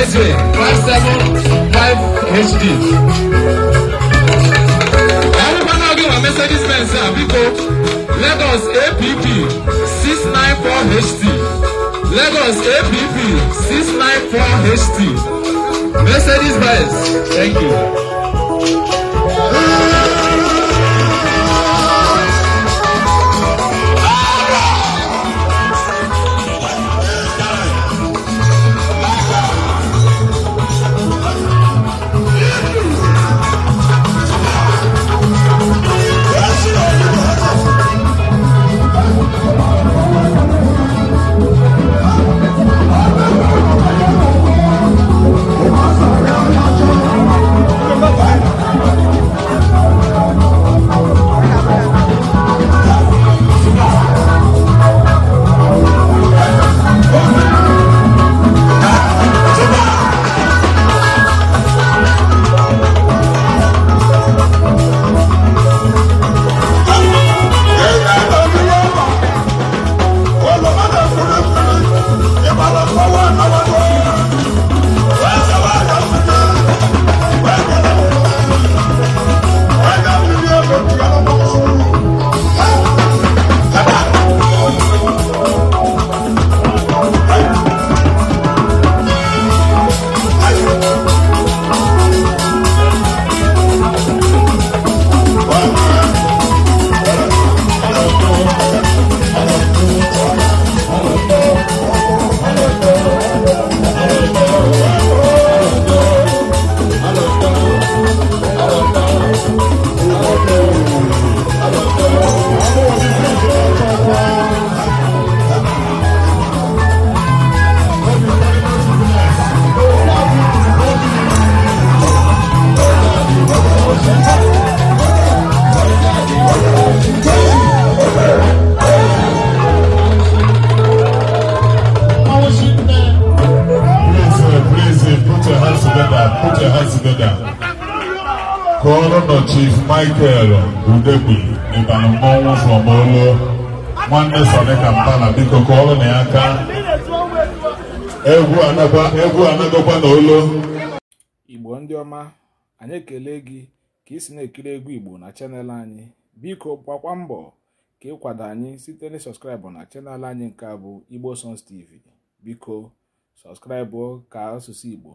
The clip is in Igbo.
Gateway five hd Ọ̀rúkọ náà gbé wọn Mercedes sir. àbíkó Lagos APP 694 HD. Lagos APP 694HT Mercedes Benz. Thank you. Thank you. kọọrọ nọ Chief Michael Udegbe ịbara mmọnwụ ụlọ nwanne Sonika Mbala biko kọọrọ na ya aka egwu anagọkwa na n'ụlọ. Igbo ndị ọma anyị ekele gị ka isi si na-ekiri egwu Igbo na chanel anyị biko gbakwa mbọ ka ịkwado anyị site na sọskraịbụ na chanel anyị nke a bụ Igbo sons TV biko sọskraịbụ ka asụsụ Igbo